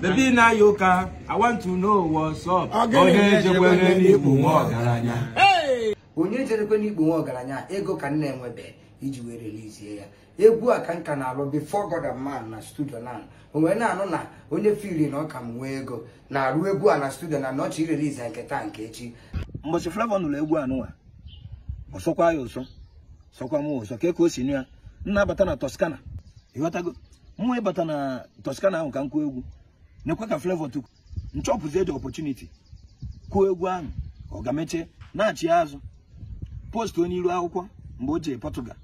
David Nayoka, I want to know what's up. Onye jekwere n'ikpu nwa ọgaranya. Onye jerekwe n'ikpu nwa ọgaranya, ego ka nna enwebe iji wee relizie ya. Egwu a ka nka na-alụ before God and man na studio na o wee na-anụ na onye firi na ọka m nwee ego na-arụ egwu a na studio na nọchi irelize nke taa nke echi. Mbọchị Flavour nụrụ egwu anụwa, ọsọkwa ya ụsọ, sọkwa m ụsọ, ka ka o si nụ a nna bata na Toscana, ịghọtago, mwa ịbata na Toscana ahụ ka m kwuo egwu nekwa ka Flavor tukwu nchọpụzie the opportunity kwuo egwu ahụ ọ ga-emeche na-achị azụ post onye iru akwụkwọ mgbe o jee Portugal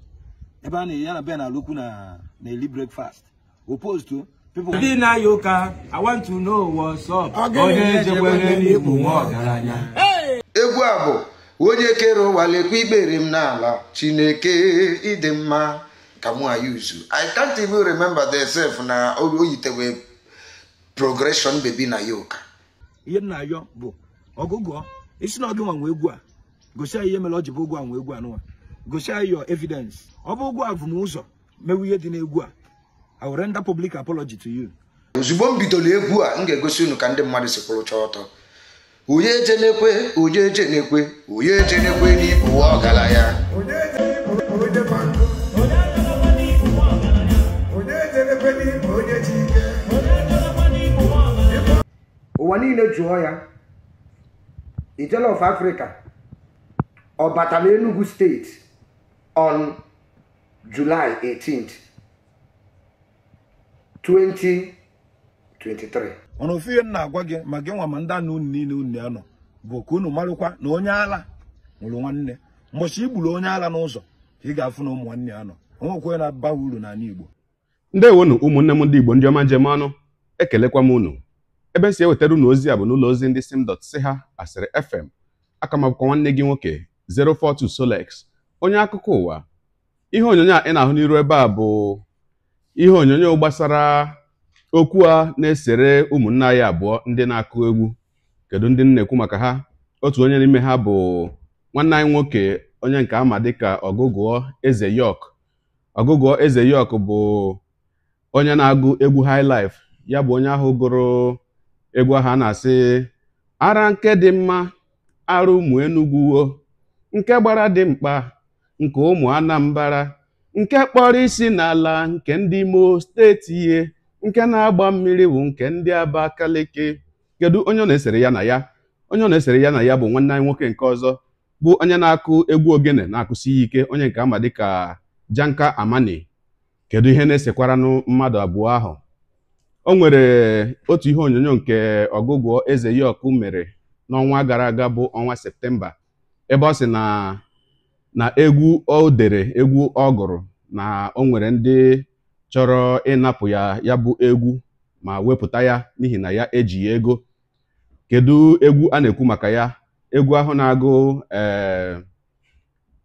ebe a na ya na Ben Alokwu na na-eli breakfast o postu ndị na-ayọ ụka I want to know what's up onye jekwere n'ikpu nwa ọgaranya egwu a bụ onye kere ụwa lekwa ikpere m n'ala chineke ịdị mma ka mụ ayuzu I can't even remember the self na oyitewe progression baby na yoke ihe m na-ayọ bụ ọgụgụ isi na ọgụ nwa egwu a gosi anyị ihe mere ọ ji bụ ụgwọ a nwe egwu anụnwa gosi anyị your evidence ọ bụ ụgwọ avụmụzọ mewu ihe dị n'egwu a I will render public apology to you ozugbo m bidoro egwu a m ga-egosi unu ka ndị mmadụ si kwụrụcha ọtọ onye eje n'ekwe onye eje n'ekwe onye eje n'ekwe n'ịbụ ọgaranya ụwa niile jụọ ya ijele of Africa ọ batala Enugu steeti on July 18th 2023 ọnụ ofu ihe m na-agwa gị ma gị nwa ma ndị anụ unu niile unu anọ bụ ka unu marụkwa na onye ala nwụrụ nwanne mbọchị igburu onye ala n'ụzọ ka ị ga-afụ na ụmụ nwanne anọ onwekwe na-aba uru n'ala Igbo ndị ndewonu ụmụnne m ndị Igbo ndị ọma njem anụ ekelekwa m unu ebe si ewetara ụlọ ozi a bụ n'ụlọ ozi ndị sim dot si ha asịrị fm aka nwanne gị nwoke 042 Solex onye akụkọ ụwa ihe onyonyo a ị na-ahụ n'iru ebe a bụ ihe onyonyo gbasara okwu a na-esere ụmụnne anyị abụọ ndị na-akụ egwu kedu ndị na-ekwu maka ha otu onye n'ime ha bụ nwanne anyị nwoke onye nke ama dịka ọgụgụọ eze yok ọgụgụọ eze yok bụ onye na-agụ egwu high ya bụ onye ahụ gụrụ egwu ahụ a na-asị ara nke dị mma ara ụmụ enugwuo nke gbara dị mkpa nke ụmụ anambara nke kpọrọ isi n'ala nke ndị imo steeti ihe nke na-agba mmiri bụ nke ndị abakaliki kedu onye ọ na-esere ya na ya onye ọ na-esere ya na ya bụ nwanne anyị nwoke nke ọzọ bụ onye na-akụ egwu ogene na-akụsi ya ike onye nke ama dịka janka amani kedu ihe na-esekwaranụ mmadụ abụọ ahụ o nwere otu ihe onyonyo nke ọgụgụ eze yọkụ mere n'ọnwa gara aga bụ ọnwa septemba ebe ọ sị na na egwu o dere egwu ọ gụrụ na o nwere ndị chọrọ ịnapụ ya ya bụ egwu ma wepụta ya n'ihi na ya ejighị ego kedu egwu a na-ekwu maka ya egwu ahụ na-agụ ee eh,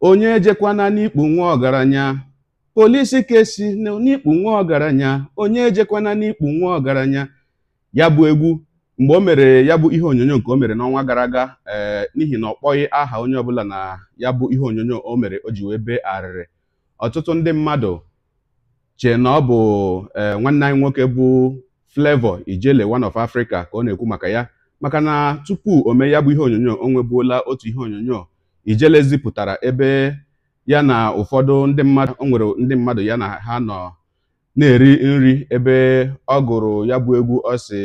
onye jekwana n'ikpu nwa ọgaranya polisi kesi esi n'ikpu nwa ọgaranya onye ejekwana n'ikpu nwa ọgaranya ya bụ egwu mgbe o mere ya bụ ihe onyonyo nke o mere n'ọnwa gara aga eh, n'ihi na ọ kpọghị aha onye ọbụla na ya bụ ihe onyonyo o mere o ji wee bee arịrị ọtụtụ ndị mmadụ chee na ọ bụ eh, nwanne anyị nwoke bụ Flavour Ijele one of Africa ka ọ na-ekwu maka ya maka na tupu o mee ya bụ ihe onyonyo o nwebuola otu ihe onyonyo Ijele zipụtara ebe ya na ụfọdụ ndị mmadụ o nwere ndị mmadụ ya na ha nọ na-eri nri ebe ọ gụrụ ya bụ egwu ọ si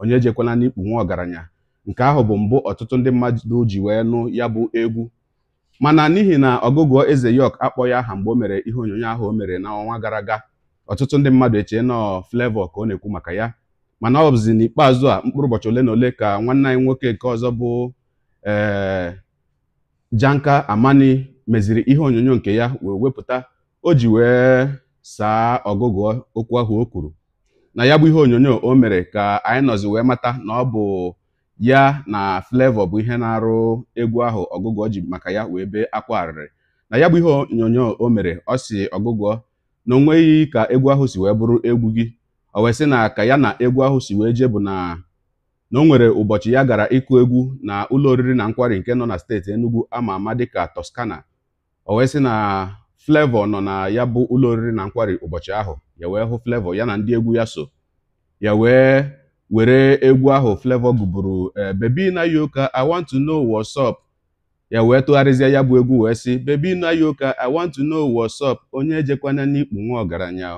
onye ejekwala n'ikpu nwa ọgaranya nke ahụ bụ mbụ ọtụtụ ndị mmadụ ji wee nụ ya bụ egwu mana n'ihi na ọgụgụ eze yok akpọ ya aha mgbe o mere ihe onyonyo ahụ o mere n'ọnwa gara aga ọtụtụ ndị mmadụ echee nọ flevọ ka ọ na-ekwu maka ya mana ọ bụzi n'ikpeazụ a mkpụrụ ụbọchị ole na ole ka nwanne anyị nwoke nke ọzọ bụ ee eh, Janka Amani meziri ihe onyonyo nke ya wee wepụta o ji wee saa ọgụgụ okwu ahụ o kwuru na ya bụ ihe onyonyo o mere ka anyị nọzi wee mata na ọ bụ ya na Flavour bụ ihe na-arụ egwu ahụ ọgụgụ ji maka ya wee bee akwa arịrị na ya bụ ihe onyonyo o mere ọ si ọgụgụ na onweghị ka egwu ahụ si wee bụrụ egwu gị o wee sị na ka ya na egwu ahụ si wee jee bụ na na o nwere ụbọchị ya gara ịkụ egwu na ụlọ oriri na nkwari nke nọ na steeti Enugu ama ama dịka Toscana o wee sị na flevọ nọ na ya bụ ụlọ oriri na nkwari ụbọchị ahụ ya wee hụ flevọ ya na ndị egwu ya so ya wee were egwu ahụ Flavour gụburu eh, Baby na yoka I want to know what's up ya wee tụgharịzie ya bụ egwu wee sị bebi na yoka I want to know what's up onye ejekwana n'ikpu nwa ọgaranya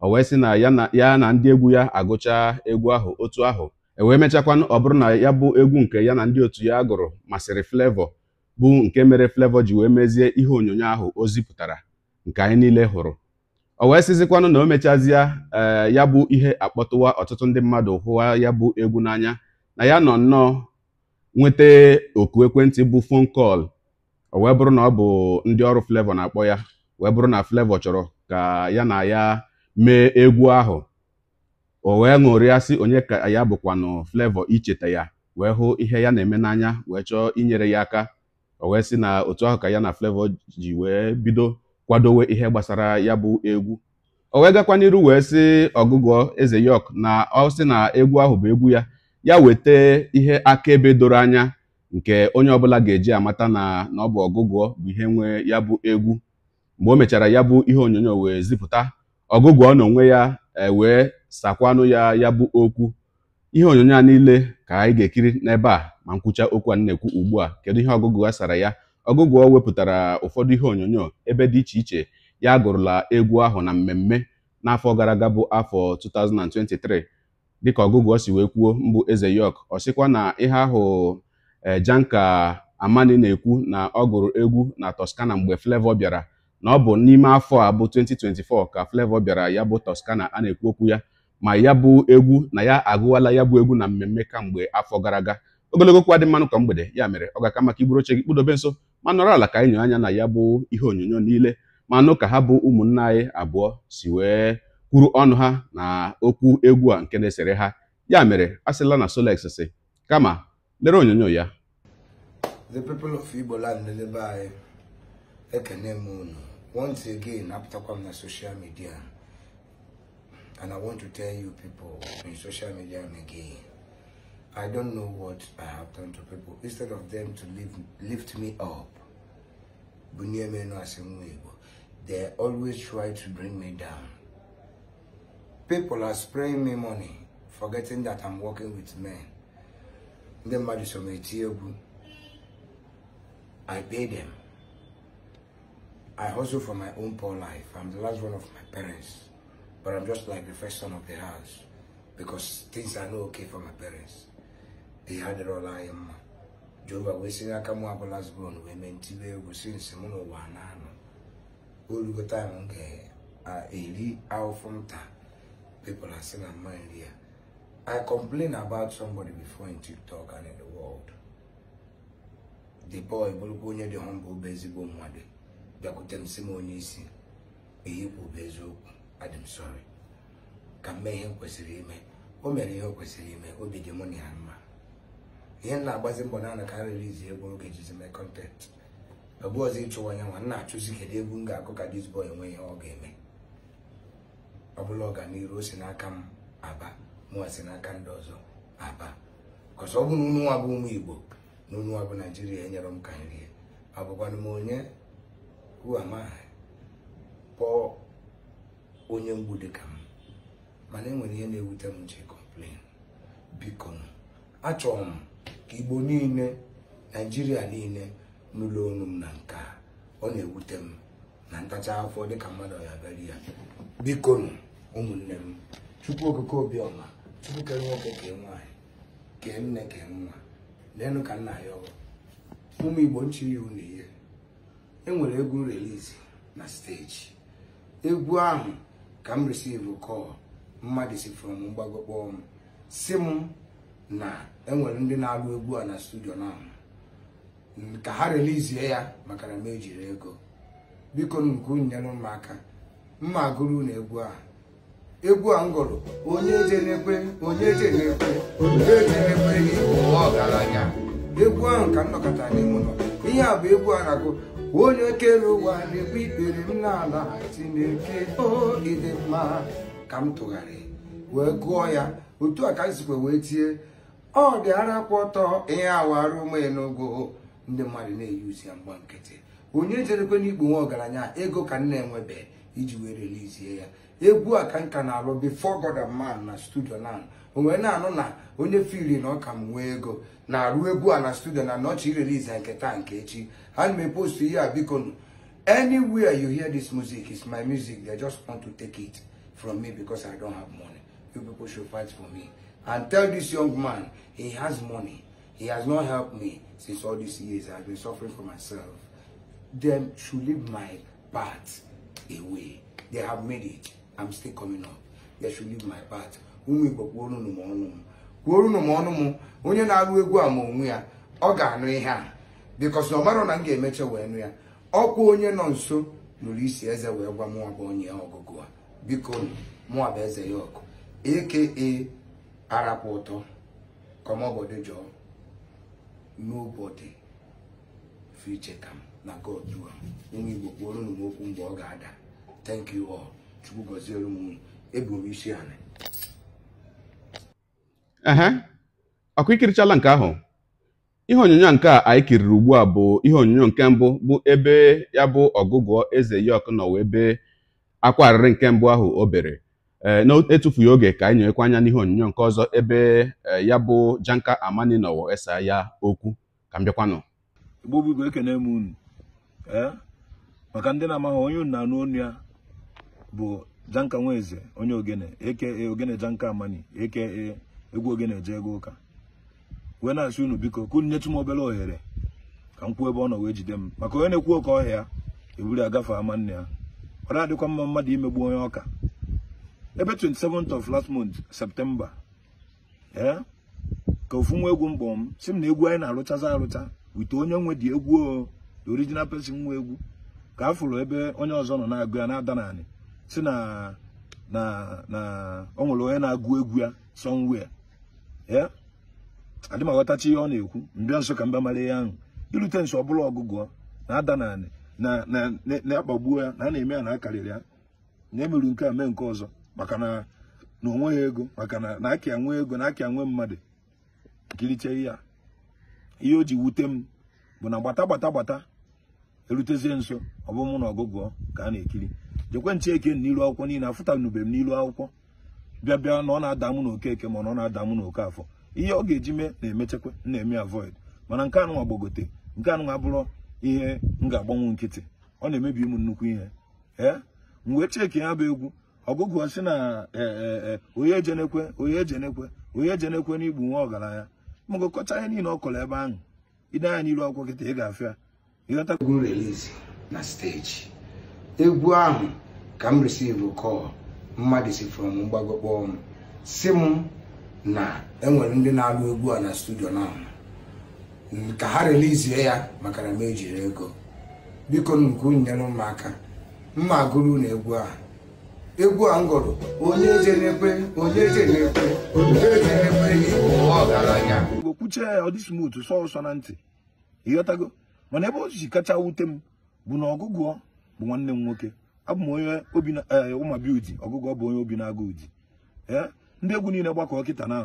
o wee sị na ya na ndị egwu ya agụcha egwu ahụ otu ahụ e wee mechakwanụ ọ bụrụ na ya bụ egwu nke ya na ndị otu ya gụrụ masịrị flevọ. bụ nke mere Flavour ji wee mezie ihe onyonyo ahụ o zipụtara nke anyị niile hụrụ o wee sizikwanụ na o mechazịa ee eh, ya bụ ihe akpọtụwa ọtụtụ ndị mmadụ hụwa ya bụ egwu n'anya na ya nọ nnọọ nweta oku ekwentị bụ fon kọl o wee bụrụ na ọ bụ ndị ọrụ Flavour na-akpọ ya wee bụrụ na Flavour chọrọ ka ya na ya mee egwu ahụ o wee sị onye ka ya bụkwanụ Flavour icheta ya wee hụ ihe ya na-eme n'anya wee chọọ inyere ya aka o wee sị na otu ahụ ka ya na Flavour ji wee bido kwadowe ihe gbasara ya bụ egwu o wee gakwa n'iru wee sị ọgụgụ eze yọk na ọ sị na egwu ahụ bụ egwu ya ya weta ihe akaebe doro anya nke onye ọbụla ga-eji amata na na ọ bụ ọgụgụ bụ ihe nwe ya bụ egwu mgbe o mechara ya bụ ihe onyonyo wee zipụta ọgụgụ na onwe ya e, wee sakwanụ ya ya bụ okwu ihe onyonyo a niile ka anyị ga-ekiri n'ebe a ma nkwucha okwu a na-ekwu ugbu a kedu ihe ọgụgụ a sara ya ọgụgụ o wepụtara ụfọdụ ihe onyonyo ebe dị iche iche ya gụrụla egwu ahụ na mmemme n'afọ gara aga bụ afọ 2023 dịka ọgụgụ o si wee kwuo mbụ eze yọk ọ sịkwa na ihe ahụ eh, Janka Amani na-ekwu na ọ gụrụ egwu na Toscana mgbe flevo bịara na ọ bụ n'ime afọ a bụ 2024 ka Flavour bịara ya bụ Toscana a na-ekwu okwu ya ma ya bụ egwu na ya agụwala ya bụ egwu na mmemme kamgbe afọ gara aga ogologo kwa dị mmanụ ka mgbede ya mere ọ ga-aka maka iburu oche gị kpụdobe nso ma nọrọ ala ka anyị anya na ya bụ ihe onyonyo niile ma nụ ka ha bụ ụmụnna anyị abụọ si wee kwuru ọnụ ha na okwu egwu a nke na-esere ha ya mere a sịla na Solex si kama lere onyonyo ya the people of Igbo land n'ebe anyị ekene m unu once again apụtakwa m na soshal midia. And I want to tell you people in social media and again, I don't know what I have done to people. Instead of them to lift, lift me up, they always try to bring me down. People are spraying me money, forgetting that I'm working with men. I pay them. I hustle for my own poor life. I'm the last one of my parents. But I'm just like the first son of the house because things are not okay for my parents. They had it all I am. we see Jehova wee sị aka mụ abụla zbon wee mee see egwu sinsi of nuwa n'ụwa na-anọ time taim m ga-eri ahụfụ nta people are saying I'm mind here. I complain about somebody before in TikTok and in the world. The boy, Bulgonia, the humble, busy, bomb, one day. They could tell him, Simon, you see, he will be adị m sọrị ka mee ihe m kwesịrị ime o mere ihe o kwesịrị ime obi dị mụ na ya mma ihe m na-agbazi mbọ na anakarịrị izi egwu oge jizi mee kọntentị ọbụ ọzọ ịchụwa ya nwa m na-achụzi kedu egwu m ga-akụ ka disbọy enwe ihe ọ ga-eme ọ bụla ọganiru o si n'aka m aba mụwa si n'aka ndị ọzọ aba kọsọ ọ bụrụ unu nwa bụ ụmụ igbo na unu nwa bụ naijiria enyere m ka nri abụkwanụ m onye uamaha pọọ onye mgbu ka m mana enwere ihe na-ewute m ji kọmplen biko achọrọ m ka igbo niile naijiria niile n'ụlọ ọnụ m na nke a ọ na-ewute m na ntacha afọ dịka mmadụ ya bịara ya biko ụmụnne m chukwu okike Obioma chukwu kere nwoke kee nwaanyị kee nne kee nwa leenụ ka nna ya ọrụ ụmụ igbo nchi ya unu ihe enwere egwu relizi na steji egwu ahụ ka m receive call mmadụ si from mgbago kpọọ m si m na enwere ndị na-alụ egwu a na studio na ka ha relizie ya maka na m ejiri ego biko nke nyere m aka mma agụrụ na egwu a egwu a m gụrụ onye na-ekwe, onye na-ekwe. onye na-ekwe gị ọgaranya egwu ahụ ka m nọkọta n'ime ihe a bụ egwu a na-agụ onye kere ụwa na-ekpe ikpere m n'ala Chineke o ịdị mma ka m tụgharị wee gụọ ya otu a ka m wee tie ọ dị ara kwụ ọtọ ihe awarụ ụmụ enugo ndị mmadụ na-eyuzi ya mgba nkịtị onye jerekwe n'ikpu nwe ọgaranya ego ka m na-enwebe iji wee relizie ya egwu a ka nka na-alụ before God a man na studio na o wee na-anụ na onye firi na ọka m nwee ego na-arụ egwu a na studio na nọchi release ya nke taa nke echi ha na post ihe a biko anywhere you hear this music is my music they just want to take it from me because I don't have money you people should fight for me and tell this young man he has money he has not helped me since all these years I've been suffering for myself them should leave my part. away. They have made it. I'm still coming up. They should leave my part Umi gbakwuo unu m ọnụ m. Kwuo unu m ọnụ m. Onye na-agụ egwu a ma onwe ya, ọ ga-anụ ihe a. Because na ọ mara na m ga-emecha wee nụ ya. Ọkwa onye nọ nso nụrụ isi eze wee gwa mụwa bụ onye ọgụgụ a. Biko mụwa bụ eze ya ọkụ. Aka arapụ ụtọ. Kọmọbọdụ jọọ. Nobody fit check am na God do am. Ụmụ Igbo kwuo unu m okwu mgbe ọ ga-ada. thank you all chukwu gọziere m ebu m isi anị ehe ọkụ ikirichala nke ahụ ihe onyonyo nke a anyị kiriri ugbu a bụ ihe onyonyo nke mbụ bụ ebe ya bụ ọgụgụ eze yok nọ wee ebe akwa arịrị nke mbụ ahụ o bere e, etufughị oge ka anyị nyekwa anya n'ihe onyonyo nke ọzọ ebe e, ya bụ janka amani nọwọ esa ya okwu ka m bịakwanụ igbo bụ igwe ekene m unu e, maka ndị na-amaghị onye unu na-anụ onu ya bụ Janka Nweze onye ogene aka ogene Janka Amani aka egwu ogene je ego ụka wee na-asị unu biko ka unu nyetụ m obere ohere ka m kwuo ebe ọ nọ wee jide m maka onye na-ekwu oke ọhịa eburu agafe ama nne ya ọ na-adịkwa mma mmadụ imegbu onye ọka ebe 27th of last month septemba ee ka ofu nwa egwu mkpọ m si m na egwu anyị na-arụchazi arụcha wite onye nwe dị egwu original person nwa egwu ka a fụrụ ebe onye ọzọ nọ na-agụ ya na-ada nanị si na na na ọ nwere onye na-agụ egwu ya somewhere ya adị m aghọtachi ihe ọ na-ekwu mbịa nso ka mba mara ihe ahụ irute nso ọbụla ọgụgụ na-ada na na-akpagbuo ya na a na-eme ya na akarịrị ya na emeru nke a mee nke ọzọ maka na na onweghị ego maka na na nwee ego na aka nwe mmadụ nkiriche ya ihe o ji wute m bụ na gbata gbata gbata erutezie nso ọ bụ mụ na ọgụgụ ka a na-ekiri jekwe nche eke n'ilu akwụkwọ niile afụtanube m n'ilu akwụkwọ bịa bịa na ọ na-ada mụ na okeke ma na ọ na-ada mụ na oke afọ ihe ọ ga-eji mee na-emechekwa na-eme avoid mana nke anụnwa gbagote nke anụnwa abụrụ ihe m ga-agbanwe nkịtị ọ na-emebi ụmụ nnukwu ihe ee mgbe cheki ya bụ egwu ọgụgụ si na e, e, e, onye ejenekwe onye ejenekwe onye ejenekwe na igbu nwa ọgaranya mgụkọcha ihe niile ọ kọrọ ebe ahụ ide anya n'iru akwụkwọ kịta ị ga-afịa egwu release na steji egwu ahụ ka m receive call mmadụ si from mgbago kpọọ m si m na enwere ndị na-alụ egwu a na studio na ka ha relizie ya maka na m ejiri ego biko nke nyere m aka mma agụrụ na egwu a egwu a m gụrụ onye je na onye onye je na ọgaranya onye ya ọ dị smooth na ntị ịghọtago mana ebe o ji kacha wute m bụ na ọgụgụ bụ nwanne m nwoke abụ m onye obi eh, ụmabi uji ọgụgụ bụ onye obi na-agụ uji ee eh, ndị egwu niile gbakọ kịta na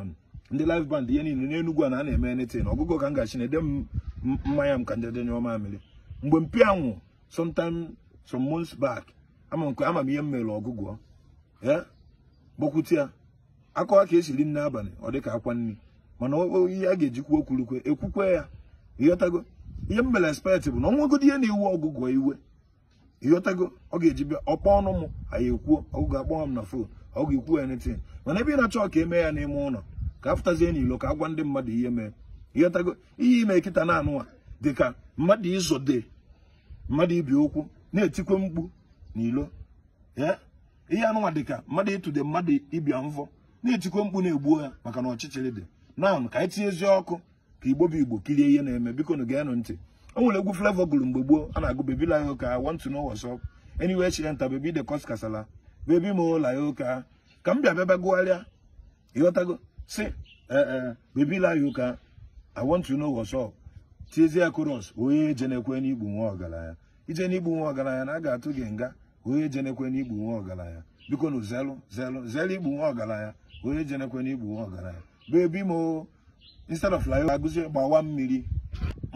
ndị live band ihe niile n'enugwu a na a na-eme na ọgụgụ ka m gachi na ede m mmanya m ka ndị denye ọma amịrị mgbe mpi anwụ sometime some mons bak ama m ihe m mere ọgụgụ ee eh, gbakwute ya akọwa ka esiri nne abalị ọ dịka akwa nri mana ihe a ga-ejikwa okwurukwe ekwukwe ya ịghọtago ihe m mere expect bụ na ọnwegodi ihe na-ewu ọgụgụ iwe ịghọtago ọ ga-eji bịa ọkpọ ọnụ m anyị ekwuo ọgụgụ akpọọ m na fon ọ ga-ekwu anything mana ebe ị na-achọ ka eme ya n'ime ụlọ ka apụtazie n'ilo ka agwa ndị mmadụ ihe mee ịghọtago ihe ime kịta na anụwa dịka mmadụ izode mmadụ ibi okwu na-etikwe mkpu n'ilo ihe anụnwa dịka mmadụ ịtụde mmadụ ịbịa mvọ na-etikwe mkpu na-egbuo ya maka na ọchịchịrị dị na ka anyị tinyezie ọkụ ka igbo bụ igbo kirie ihe na-eme biko na geenụ ntị o nwere egwu Flavour gụrụ mgbe gboo a na-agụ bebi la ya ụka I want to know what's up anyway chilenta bebi de kos kasala bebi mo la ya ụka ka m bịa bịaba gụgharịa ịghọtago si ee eh, eh, bebi la ya ụka I want to know what's tiezie koros onye je na igbu n'igbu nwa ọgaranya ije n'igbu nwa ọgaranya na a ga-atụ gị nga onye je na igbu n'igbu nwa ọgaranya biko na zelụ zelụ zelụ igbu nwa ọgaranya onye je na igbu n'igbu nwa ọgaranya bebi mo instead of like agụzi gbawa mmiri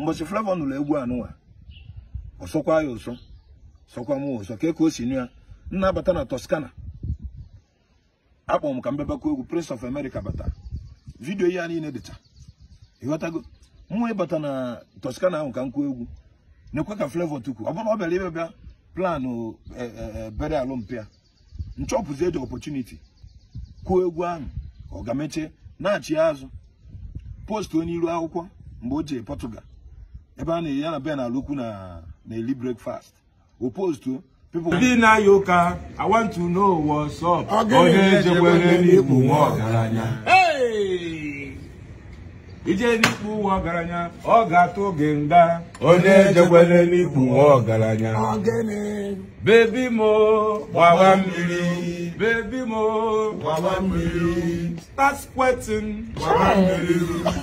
mbọchị Flavour nụlọ egwu anụwa ọsọkwa ya ụsọ sọkwa m ụsọ ka ka si nụ ya nna bata na Toscana akpọ m ka m egwu Prince of America bata vidiyo ya niile dịcha ịghọtago mwa ịbata na Toscana ahụ ka m kwuo egwu na-ekwe ka Flavour tukwu ọ bụrụ ọ bịara ibe bịa planụ e, e, e, bere alụmpịa nchọpụzi eji ọpọchuniti kwuo egwu ahụ ọ ga-emeche na-achị azụ onye iru akwụkwọ mgbe o jee Portugal ebe a na-eyi ya na be na alụkwu na na-eli breakfast o postuo ndị na-aya ụka I want to know what's up onye ejekwere n'ikpu nwa ọgaranya ije n'ikpu nwa ọgaranya ọ ga-atụ gị nga onye ejekwele n'ikpu nwa ọgaranya bebi mo gbawa mmiri bebi mo gbawa mmiri start sweating gbawa mmiri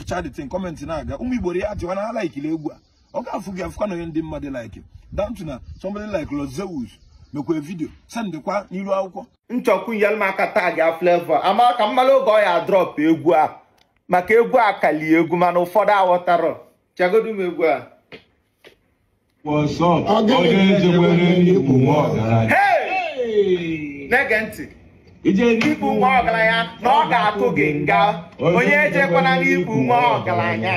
charity kọmentị na-aga ụmụ Igbo ya jụwa na ha egwu a ọ ga-afụ gị afụkwa na onye ndị mmadụ like down na somebody like Rosewood mekwa vidio sendịkwa n'iru akwụkwọ nchọkwu nyelmaka tag ya flavor ama ka mmalụ oge ọ ya drọp egwu a maka egwu a kalie egwu mana ụfọdụ aghọtara chagodu m egwu a na-ege ntị ikpu nwa ọgaranya na ọ ga-atụ gị nga onye ejekwana n'ikpu nwa ọgaranya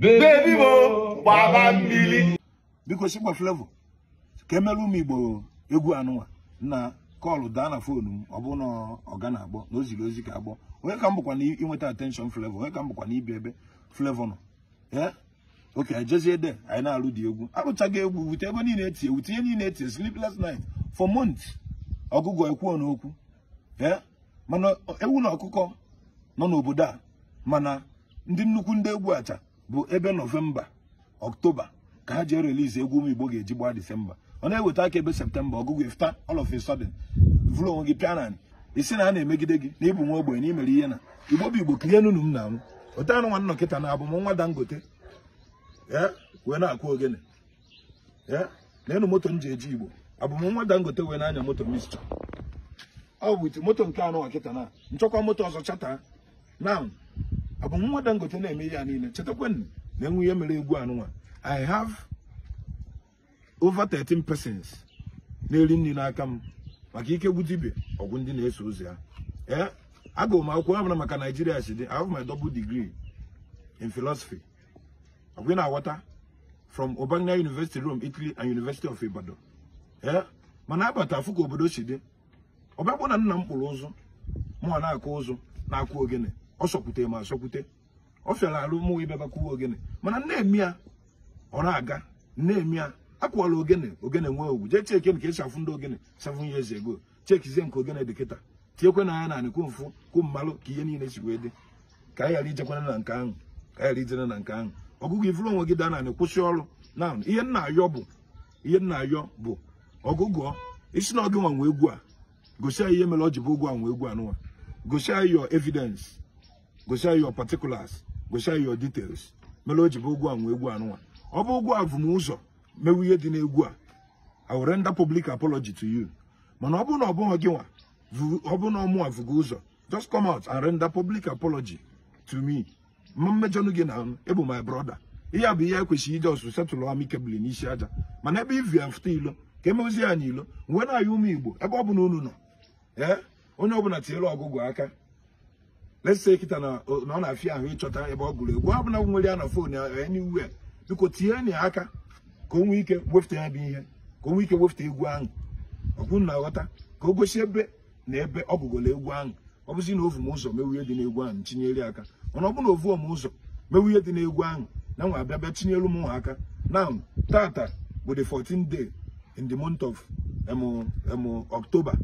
bebi m gbaba mmiri biko shigba flevo ka emelụ m igbo egwu anụnwa na kọlụ daa na fonu m ọ bụ na ọ ga na-agbọ na o ziri ozi ka agbọ onye ka m bụkwa na inweta atenshọn flavor onye ka m bụkwa na ibi ebe flavor nọ ee eh? oke ejezie de anyị na-alụ dị egwu arụchaghị egwu wute ego niile etie ihe niile etie sleepless night for months ọgụgụ ekwuo n'okwu eh? mana ewu na ọkụkọ nọ n'obodo a mana ndị nnukwu ndị egwu acha bụ ebe nọvemba ọktoba ka ha jee release egwu ụmụ igbo ga-eji gbaa disemba ọ na-eweta aka ebe septemba ọgụgụ ifta all of a onwe gị pianani isi na a na-emegide gị na ịbụ nwa ogbenye na imere ihe na igbo bụ igbo kirie nunu m na anwụ nwa na abụ m nwa dangote wee na-akụ ogene na enu moto m ji eji igbo abụ m nwa dangote wee na-anya moto mistọ ọ bụ iti moto nke anụ nwa kịta na nchọkwa moto ọzọ chata na abụ m nwa dangote na-eme ihe ya niile chetakwanụ na enwe ihe mere egwu anụnwa i have over 13 persons na-eri nri n'aka m maka ikegbu ibe ọgwụ ndị na-eso ụzọ ya ee eh, agụụ m akwụkwọ abụra maka naijiria si dị I have my double degree in philosophy ọgwụ na-aghọta from Urbana University Rome Italy and University of Ibadan ee eh, mana abata afụ ka obodo si dị ọbịakpụ na nna m kpụrụ ụzụ mụnwa na-akụ ụzụ na-akụ ogene ọ sọkwute ma asọkwute ọ fịara alụ mụnwa ibe bakwuwe ogene mana nne m ya ọ na-aga nne m ya akwụwala ogene ogene nwee owu jee cheke nke esi ndị ogene seven years ago chekizie nke ogene dị kịta tinyekwe na ya na anịkwu mfụ kwu mmalụ ka ihe niile si wee dị ka anyị ghara ijekwana na nke ahụ ka anyị ghara ijere na nke ahụ ọgụgụ ifuru onwe gị daa na anị kwụsị ọrụ na ihe nna ayọ bụ ihe nna ayọ bụ ọgụgụ isi na ọgị nwanwe egwu a gosi anyị ihe mere ọ ji bụ ụgwọ anwe egwu anụwa gosi anyị your evidence gosi anyị your particulars gosi anyị your details mere o ji bụ ụgwọ anwe egwu anụwa ọ bụ ụgwọ avụmụzọ mewu ihe dị n'egwu a I will render public apology to you mana ọ bụrụ na ọ bụghị gị nwa ọ bụrụ na ọmụ mụwa vụgo ụzọ just come out and render public apology to me ma mmejọnụ gị na ebu my brother ihe a bụ ihe ekwesịghị ije ọsụ setụlụ amikebụl n'isi aja mana ebe ivi ya fụta ilo ka emezie anyị ilo nwe na-ayị ụmụ igbo ebe ọ bụla unu nọ ee eh, onye ọbụla tinyere ọgụgụ aka lese kịta na ọ na-afịa ahụ ịchọta ebe ọ gụrụ egwu ọ bụla nwere ya na fon ya enyiwe biko tinye ya aka ka o nwee ike wefụta ya bụ ihe ka o nwee ike wefụta egwu ahụ ọkwụnụ na-aghọta ka o gosi ebe na ebe ọ egwu ahụ ọ bụzi na ovu m ụzọ mewu dị n'egwu ahụ tinyere aka mana ọ bụrụ na ovuo m ụzọ mewu ihe dị n'egwu ahụ na nwa abịa bịa tinyelu m aka na tata bụ the 14 day in the month of October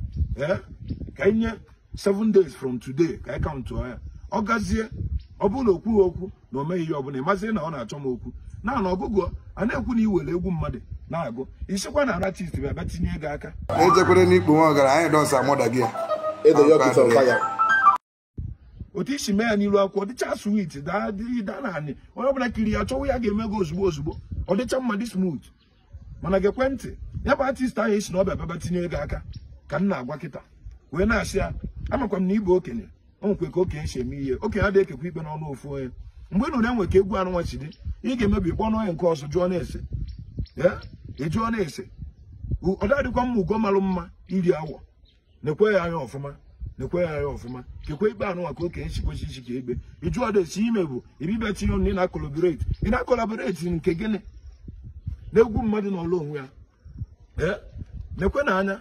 ee eh, ka nye 7 days from today ka anyị kaụntụ ya ọ gazie ọ bụrụ na okwu okwu na o meghị ihe ọbụla ị mazie na ọ na-achọ m okwu na na ọgụgụ a na-ekwu na iwere egwu mmadụ na-agụ isikwa na aratist bụ ebe tinye ego aka ejekwere n'ikpe nwa ọgaranya dọsa mọda gị otu isi mee ya n'iru akwụkwọ dịcha swit daa na anị onye ọbụla kiri ya chọwụ ya ga-eme gị ozugbo ozugbo ọ dịcha dị smooth mana gị ekwentị ya bụ atist ahụ esi na ọba baba tinye ego aka ka m na-agwa kịta wee na-asị ya amakwa m na ịbụ okenye o nwekwe ka okenye si eme ihe okenye adịghị ekekwa ikpe n'ọnụ ofu onye mgbe nụrụ enwe ka egwu anụnwa chi dị ị ga-emebi kpọnụ onye nke ọzọ jụọ na-ese ịjụọ na-ese ọ dadịkwa mma ugo marụ mma iri awọ na ya anya ọfụma N'ekwe ya anya ọfụma kekwe ikpe anụ maka okenye chikwechi ichi ka egbe da esi ime bụ ibibe tinye ọnụ ị na-akọlaboreti ị na-akọlaboreti nke gịnị na-egwu mmadụ n'ọlụ onwe ya Ee, ekwe na anya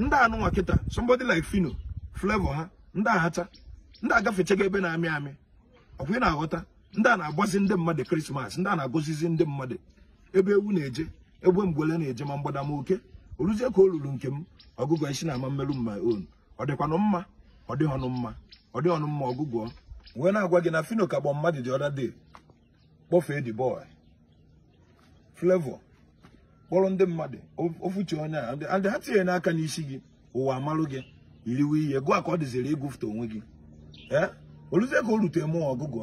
ndị anụ kịta somebody like fino Flevọ ha ndị ahacha ndị agafechaga ebe na-amị amị ọkwa ị na-aghọta ndị a na-agbazi ndị mmadụ krismas ndị a na-agọzizi ndị mmadụ ebe ewu na-eje egbe mgbele na-eje ma mgbadama oke oruzie ka o ruru nke m ọgụgụ isi na ama mmerụ mma on ọ dịkwanụ mma ọ dịghị ọnụ mma ọ dịghị ọnụ mma ọgụgụ wee na-agwa gị na fino kagbọ mmadụ dị ọda dị kpọfee dị bọị flevo kpọrọ ndị mmadụ ofuchi onye a ndị ha tinye n'aka n'isi gị ụwa amalụ gị iriwe ihe gụọ ka ọ dịziri ịgụfụta onwe gị ee eh? ka o rute mụọ ọgụgụ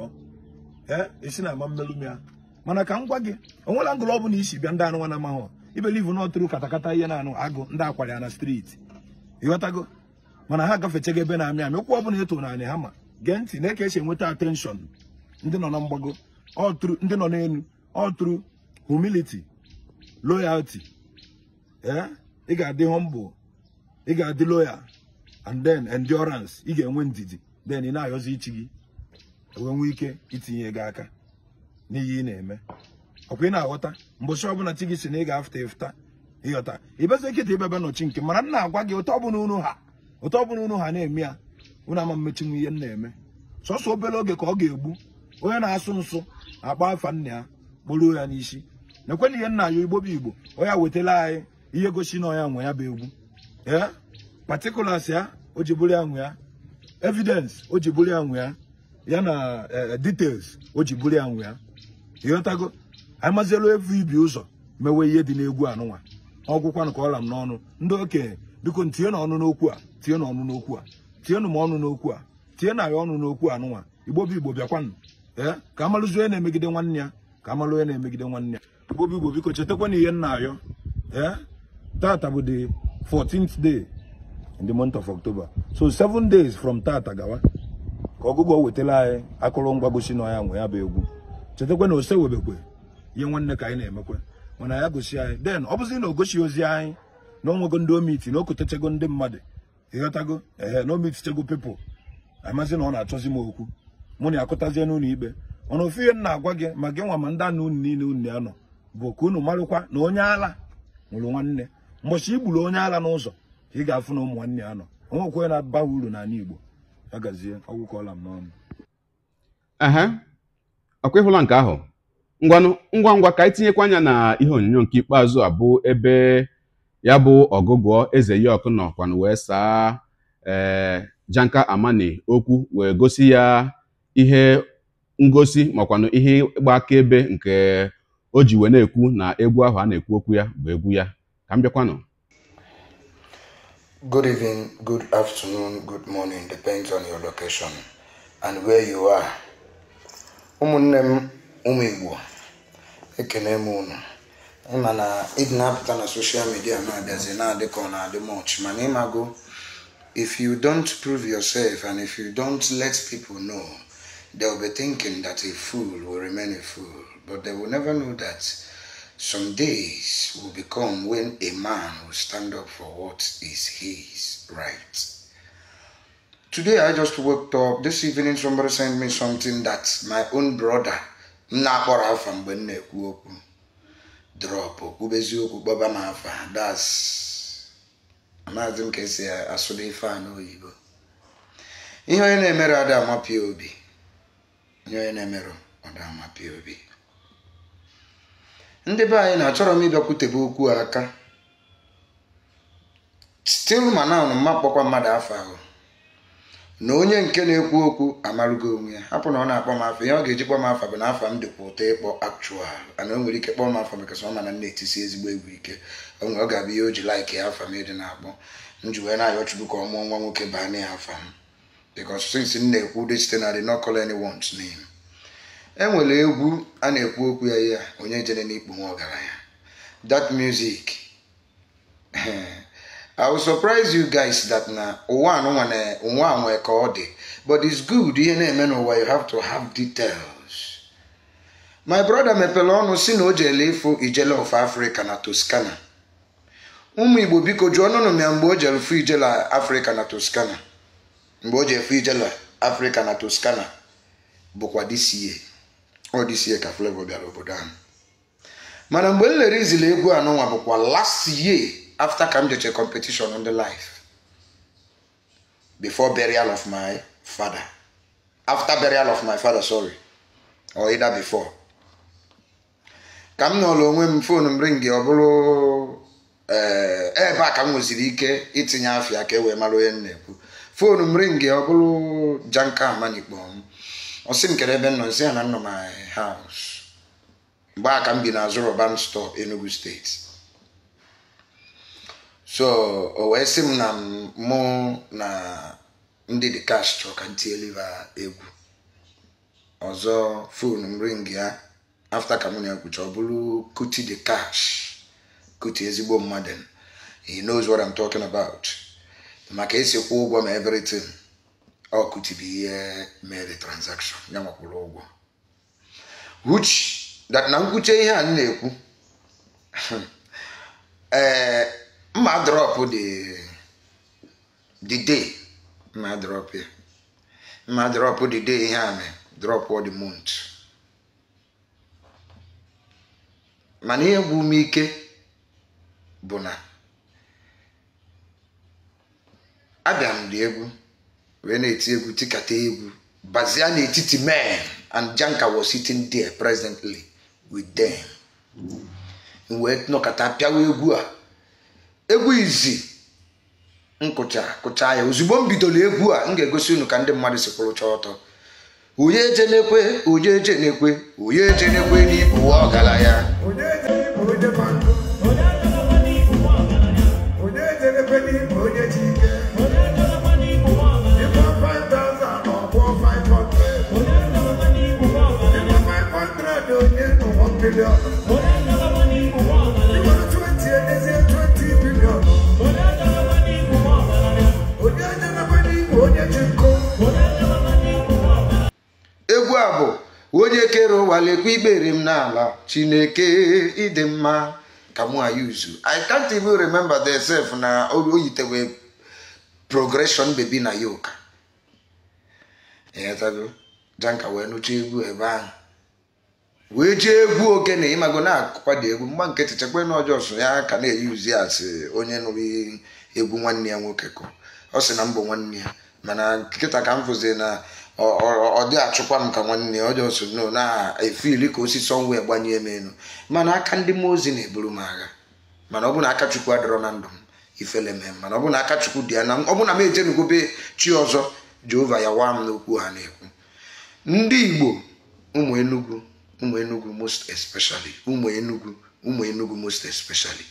esi eh, na ama mmelụ ya mana ka m gwa gị onwela ngụlụ ọ bụla isi bịa ndị anụ nwana amahụ ibelivu na ọtụrụ katakata ihe na-anụ agụ ndị akwara ya na ị ịghọtago mana ha gafechego ebe na-amị amị ụkwụ ọ bụla eto na anị ha ma gee ntị na-eke esi enweta atenshọn ndị nọ na mgbago ọtụrụ ndị nọ n'elu ọtụrụ humiliti loyalti eh, ị ga-adị humble ị ga-adị loyal and then endurance ị ga-enwe ndidi then ị na-ayọzi ichi gị wee nwee ike itinye gị aka n'ihe ị na-eme ọkwa ị na-aghọta mbọchị ọbụla chi gị si na ị ga-afụta ịfụta ịghọta ịbeze nkịta ịbebe nọchi nke mara na agwa gị ụtọ ọbụla unu ha ụtọ ọbụla unu ha na-eme ya unu ama mmechinwu ihe m na-eme sọsọ obere oge ka ọ ga-egbu onye na-asụ nsụ akpa afa nna ya kporuo ya n'isi na-ekwe ihe nna ya igbo bụ igbo onye wetala anyị ihe gosi na ọnya nwe ya bụ egwu ee patikulas ya o ji bụrụ ya nwe ya evidence o ji bụrụ ya nwe ya ya na eh, eh, details o ji bụrụ ya nwe ya ịghọtago amazielu evu ibi ụzọ mewe ihe dị n'egwu anụnwa ọgwụkwanụ ka ọla m n'ọnụ ndị okenye biko tinye na ọnụ n'okwu a tinye n'ọnụ ọnụ n'okwu a tinye na m ọnụ n'okwu a tinye na ya ọnụ n'okwu anụnwa igbo igbo bịakwanụ ee eh, ka amalụzi onye na-emegide nwanne ya ka amalụ onye na-emegide nwanne ya igbo igbo biko chetakwana ihe nna ayọ ee tata bụ the 14th day in the month of October so 7 days from tata gawa ka ọgụgụ o wetara anyị akụrụngwa gosi na ya nwe ya bụ egwu chetakwa na ose webekwe ihe nwanne ka anyị na-emekwa mana ya gosi anyị den ọ bụzi na o gosi ozi anyị na onwego ndị omiti na okotechego ndị mmadụ ịghọtago ehe na omitichego pepụl amazi na ọ na-achọzi m okwu mụ na akụtazie n'ụlọ ikpe ọnụ ofu ihe m na-agwa gị ma gị nwa ma ndị anụ unu niile unu ya nọ bụ ka unu marụkwa na onye ala nwụrụ nwanne mbọchị igburu onye ala n'ụzọ ka ị ga-afụ na ụmụ nwanne ya nọ onwekwe na-aba uru n'ala Igbo agazie ehe ọkwa ịhụla nke ahụ ngwanụ ngwa ngwa ka anyị anya na ihe onyonyo nke ikpeazụ a bụ ebe ya bụ ọgụgụọ eze ya ọkụ na wee saa ee eh, janka amani okwu wee gosi ya ihe ngosi makwanụ ihe ịgba akaebe nke o ji wee na-ekwu na egwu ahụ a na-ekwu okwu ya bụ egwu ya ka m bịakwanụ Good evening, good afternoon, good morning, depends on your location and where you are. ụmụnne umiwo. ụmụ Igbo ekene m unu na ịdị na-apụta na soshal midia na-abịazi much if you don't prove yourself and if you don't let people know they'll be thinking that a fool will remain a fool but they will never know that some days will become when a man will stand up for what is his right. Today I just woke up. This evening somebody sent me something that my own brother na-akpọrọ afa mgbe m na-ekwu okwu drop kwubezi okwu kpọba m afa das amaghịzi m ka esi asụda ife a n'oyibo ihe onye na-emere ada amapịa obi ihe a mirror. emere ọda amapịa ndị be anyị na-achọrọ m ịbịakwutebe okwu aka stil ma mma kpọkwa mmadụ afọ ahụ na onye nke na-ekwu okwu amarugo onwe ya hapụ na ọ na-akpọ m afọ ihe ọ ga-eji kpọọ m afọ bụ na afọ m dịkwa ụtọ ịkpọ actual ana o nwere ike kpọọ m afọ maka ọ mana m na-etisi ezigbo egwu ike o ọ ga-abụ ihe o ji laik ya afọ m ịdị na-akpọ m ji wee na-ayọ chukwu ka ọ mụọ nwa nwoke baa na ya afọ m because since m na-ekwu dị site na the no call anyone's name enwere egwu a na-ekwu okwu ya ya onye jere n'ikpu nwa ọgaranya that music I will surprise you guys that na ụwa anụnwa na ụwa anwe ka ọ dị but it's good ihe na-eme n'ụwa you have to have details my brother mepere ọnụ si na o jele ịfụ ijele of Africa na Toscana ụmụ Igbo biko jụọ nụnụ ya mgbe o jere fu ijele Africa na Toscana mgbe o jere fu ijele Africa na Toscana bụkwa this ihe. ọ ka Flavour bịara obodo ahụ mana mgbe m lere izili egwu anụnwa bụkwa last year after ka m jeche competition on the life before burial of my father after burial of my father sorry or either before ka m nọrọ onwe m fon m ringi ọ bụrụ eh, ebe a ka m nweziri ike itinye ahịa ka e wee mara onye m na-ekwu fon m ringi ọ bụrụ janka amanikpo m ọ sị m kere ebe nọ nsị ya na nọ my haus mgbe ka m bi n'azụ Roban store Enugu steeti so o wee sị m na mụ na ndị dị kash chọrọ ka egwu ọzọ fon m ring ya afta ka mụ na ekwucha ọ bụrụ Kuti dị kash Kuti ezigbo mmadụ he knows what I'm talking about maka esi kwụ ụgwọ ma everything ọkụtibi ihe eh, mere transaction ya nwakwụrụ ụgwọ which na nkwụcha ihe a na-ekwu ee eh, mma dị dị dị mma drọp ya mma drọp dị dị ihe a mee ọ dị month mana ihe gwụ ume ike bụ na abịa m dị egwu wee na-eti egwu tikata egwu bazia n'etiti mee and Janka was sitting there presently with them wee nọkata pịawa egwu a egwu izi nkụcha kụcha ya ozugbo m bidoro egwu a m ga-egosi unu ka ndị mmadụ si kwụrụcha ọtọ onye eje ekwe onye eje ekwe onye eje n'ibu egwu a bụ onye kere ụwa lekwa ikpere m n'ala chineke ịdị mma ka mụ ayuzu i can't even remember the self na o yitewe progression baby na yoka janka wee nụcha egwu ebe ahụ wee jee egwu ogene ịmago na-akwado egwu mgba nke chechekwa na ọjọọ so ya ka na uzi asị onye nụrụ egwu nwanne ya nwoke kụ ọ sị na mbụ nwanne ya mana nkịta ka m fụzi na ọ dị achụkwa m ka nwanne ya ọjọọ so no na-efili ka osisi ọnwụ ya gbanye m elu mana aka ndị mmụọ ozi na-eburu m agha mana ọ bụ na aka Chukwu adọrọ na ndụ m ifele m mana ọ bụ na aka Chukwu dị ya na ọ bụ na m ejenugobe chi ọzọ Jehova ya waa m n'okwu ha na-ekwu ndị Igbo ụmụ Enugu ụmụ most especially ụmụ enugwu ụmụ most especially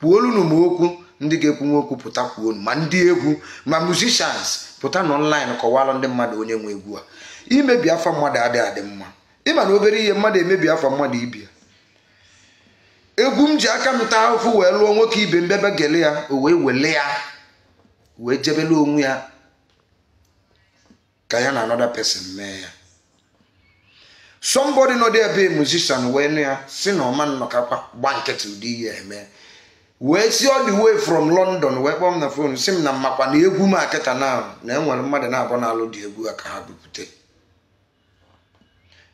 kwuolunu m okwu ndị ga-ekwu nwoke pụta kwuonu ma ndị egwu ma musicians pụta n'ọnlaịn kọwalụ ndị mmadụ onye nwe egwu a imebi afọ mmadụ adịghị adị mma ịma na obere ihe mmadụ emebi afọ mmadụ ibia egwu m ji aka m ụfụ wee lụọ nwoke ibe mbebe gele ya o wee wele ya wee jebele onwe ya ka ya na anoda pesin mee ya somebody nọ there be musician wee nụ ya si na ọma nnọkakwa gba nkịtị ụdị ihe eme wee si ọ dị way from london wee kpọọ na fon si m na mmakwa na egwu m akịta na na enwere mmadụ na-abụ na-alụ dị egwu a ka ha bupute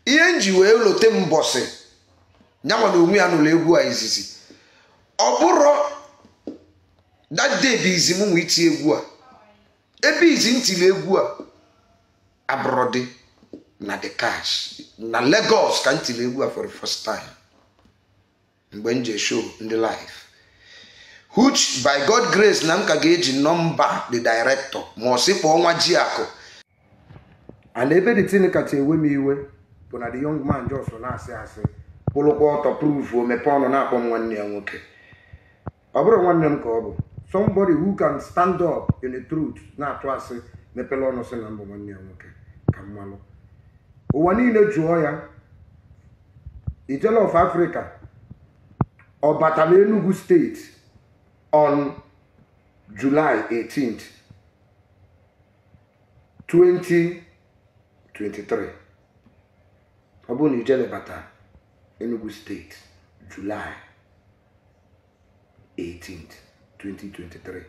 ihe nji wee lote mbọsị nyanwa na onwe ya n'ụlọ egwu a izizi ọ bụrụ that bụ izi m nwe iti egwu a ebe izi m egwu a abụrọdị na the cash na Lagos ka m tiri egwu a for the first time mgbe m ji show ndị live huch by God grace na m ka ga-eji nọmba the director ma ọ sị kpọọ nwa ji akụ and ebe the tin kacha ewe m iwe bụ na the young man jos na-asị asị kwụlụkwa ọtọ proof o mepee ọnụ na-akpọ m nwanne ya nwoke ọ bụrụ nwanne m ka ọ bụ somebody who can stand up in the truth na-atụ asị mepere ọnụ sị na mbụ nwanne ya nwoke ka mmanụ. ụwa niile jụọ ya ijele of Africa ọ batala na Enugu steeti on July 18 2023 ọ bụrụ na ijele bata Enugu steeti July 18th 2023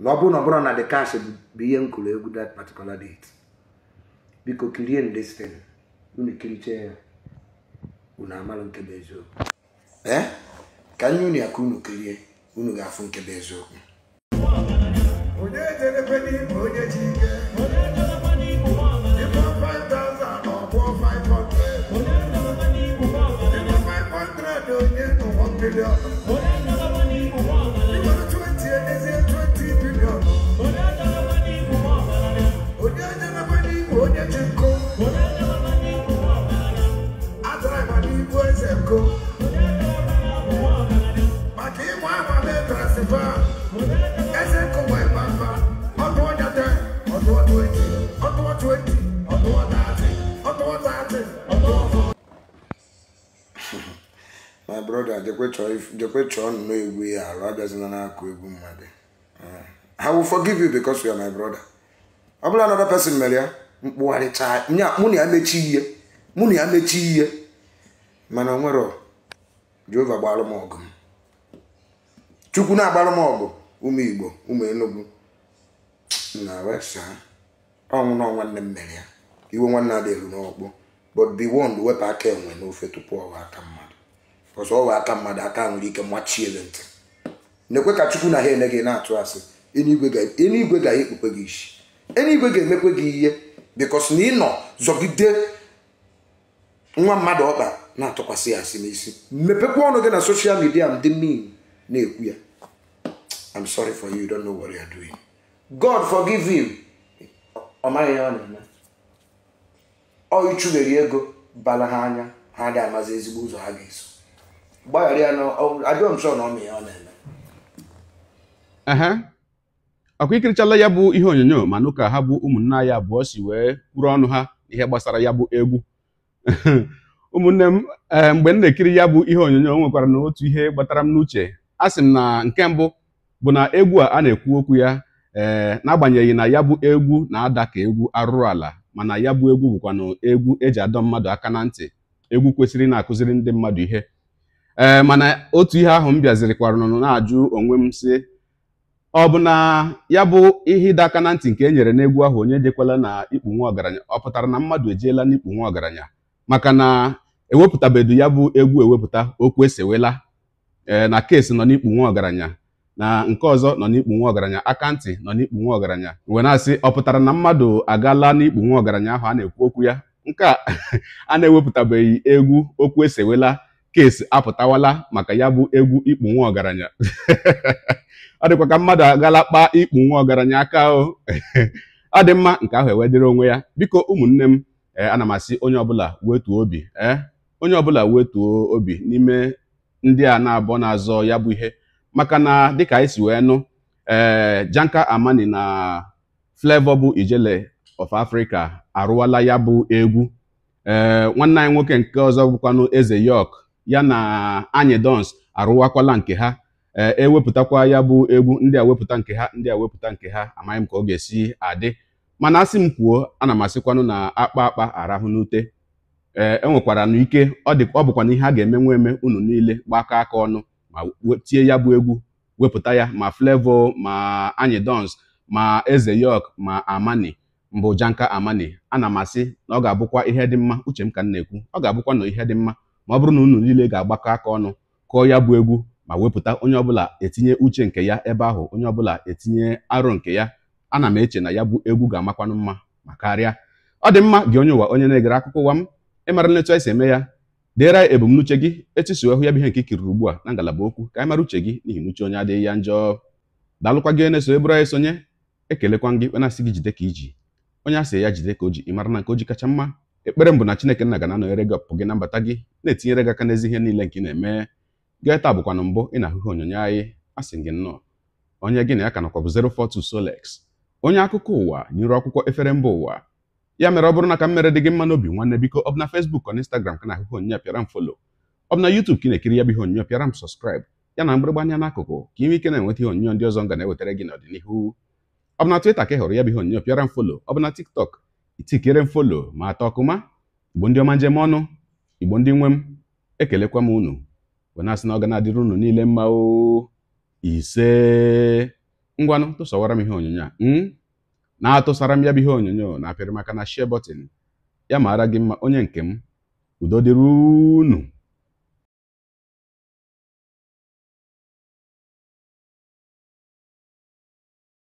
na ọ bụrụ na ọ bụrụ na the cash bụ ihe m kụrụ egwu that particular date biko kirie ndestin eh? unu ya unu amara nke bụ eziokwu ee ka nye unu ya ka unu kirie unu ga-afụ nke bụ eziokwu onye jerekwe n'ime onye ji ike 500 onye nọ broda jekwe chọọ nnọọ egwu ya arụ abịazina n'akụ egwu mmadụ I will forgive you because you are my brother ọ bụla another person mere ya mkpụgharịcha mụ na ya mechi ihe mụ na ya mechi ihe mana onwere Jehova gbalụ m ọgụ chukwu na-agbalụ m ọgụ ụmụ Igbo ụmụ Enugu na wesa ọnwụ na nwanne m mere ya iwe nwanne adịghị n'ọkpụ but be warned wepụ aka enwe n'ofe tupu ọwa aka mmadụ ọzọ ọwa aka mmadụ aka nwere ike machie ntị n'ekwe ka chukwu na ha ene gị na-atụ asị eluigwe ga-ekpukpe gị isi eluigwe ga-emekwe gị ihe bikos na ị nọ zọgide nwa mmadụ ọkpa na-atụkwasị ya asị n'isi mepekwa ọnụ gị na soshal midia m dị mean na-ekwu ya I'm sorry for you you don't know what you are doing God forgive him ọ maghị ya ọ na-eme ọ ichubere ego bala ha anya ha agaghị amazi ezigbo ụzọ ha ga-eso gbaghara ya na ajọ na ya ọ na-eme ọkwa ikirichala ya bụ ihe onyonyo mana ụka ha bụ ụmụnne anyị abụọ si wee kwuru ọnụ ha ihe gbasara ya bụ egwu ụmụnne m eh, mgbe m na-ekiri ya bụ ihe onyonyo nwekwara na otu ihe gbatara m n'uche a sị m na nke mbụ bụ na egwu a a na-ekwu okwu ya ee eh, n'agbanyeghị na ya bụ egwu na-ada ka egwu arụrụ ala mana ya bụ egwu bụkwanụ egwu eji adọ mmadụ aka na ntị egwu kwesịrị na-akụziri ndị mmadụ ihe ee mana otu ihe ahụ m bịazirikwara nọ na-ajụ onwe m si ọ bụ na ya bụ ihe ịdọ aka na ntị nke e nyere n'egwu ahụ onye dịkwala na ikpu nwa ọgaranya ọ pụtara na mmadụ ejeela n'ikpu nwa ọgaranya maka na ewepụtabedu ya bụ egwu ewepụta okwu esewela ee na keesi nọ n'ikpu nwa ọgaranya na nke ọzọ nọ n'ikpu nwa ọgaranya akantị nọ n'ikpu nwa ọgaranya we na-asị ọ pụtara na mmadụ agaala n'ikpu nwa ọgaranya ahụ a na-ekwu okwu ya nke a na-ewepụtabeghị egwu okwu esewela keesi apụtawala maka ya bụ egwu ịkpụ nwa ọgaranya ọ dịkwa ka mmadụ agala kpaa ikpu nwa ọgaranya aka o ọ dị mma nke ahụ ewedịrị onwe ya biko ụmụnne m eh, ana m asị onye ọbụla wetuo obi ee eh, onye ọbụla wetuo obi n'ime ndị a na-abọ na-azọ ya bụ ihe maka na dịka anyị si wee nụ ee eh, Janka Amani na Flavour bụ Ijele of Africa arụwala ya bụ egwu ee nwanne anyị nwoke nke ọzọ bụkwanụ Eze York ya na anyị dons arụwakwala nke ha ewepụtakwa e ya bụ egwu ndị a wepụta nke ha ndị a wepụta nke ha amaghị m ka ọ ga-esi adị mana asị m kwuo ana m asịkwanụ na akpa akpa arahụ n'ute ee enwekwara na ike ọ bụkwa na ihe a ga nwa eme unu niile gbakọ aka ọnụ ma tie ya bụ egwu wepụta ya ma flevọ ma anyị dons ma eze yok ma amani mbụ janka amani ana m asị na ọ ga-abụkwa ihe dị mma uche m ka m na-ekwu ọ ga-abụkwa na ihe dị mma ma ọ bụrụ na unu niile ga-agbakọ aka ọnụ kụọ ya bụ egwu ma wepụta onye ọbụla etinye uche nke ya ebe ahụ onye ọbụla etinye arụ nke ya ana m eche na ya bụ egwu ga-amakwanụ mma ma karịa ọ dị mma gị onye ụwa onye na-egere akụkọ ụwa m ịmara nletu anyị eme ya deere ebumnuche gị etusuo hụ ya bụ ihe nke ikiriri ugbu a na ngalaba okwu ka anyị mara uche gị n'ihi n'uche onye adịghị ya njọ daalụkwa gị na-eso ebụrụ anyị sonye ekelekwa gị wena asị gị jide ka iji onye asị ya jide ka o ji ịmara na nke o ji kacha mma ekpere m bụ na chineke nna ga na-anọnyere gị ọpụpụ gị na mbata gị na-etinyere gị aka n'ezi ihe niile nke ị na-eme gị taa bụkwa mbụ ị na-ahụhụ onyonyo anyị a sị gị nnọọ onye gị na ya ka nọkwa bụ 042 Solex onye akụkọ ụwa nyere akwụkwọ efere mba ụwa ya mere ọ bụrụ na ka m mere dị gị mma n'obi nwanne biko ọ bụ na Facebook ọ na Instagram ka na-ahụhụ onyonyo pịara m folo ọ bụ na YouTube ka ị na-ekiri ya bụ ihe onyonyo pịara m sọskraịb ya na mgbịrịgba anya n'akụkụ ka ị ike na-enweta ihe onyonyo ndị ọzọ ga na-ewetara gị n'ọdịnihu ọ Twitter ka ị hụrụ ya bụ ihe onyonyo pịara m folo ọ TikTok itikere m folo ma atọ ọkụma igbo ndị ọma njem ọnụ igbo ndị nwe m ekelekwa m unu wee na-asị na unu niile mma o ise ngwanụ tụsọwara m ihe onyonyo a hmm? na-atụsara m ya bụ ihe onyonyo na apịrị maka na share button ya maara gị mma onye nke m udo dịrị unu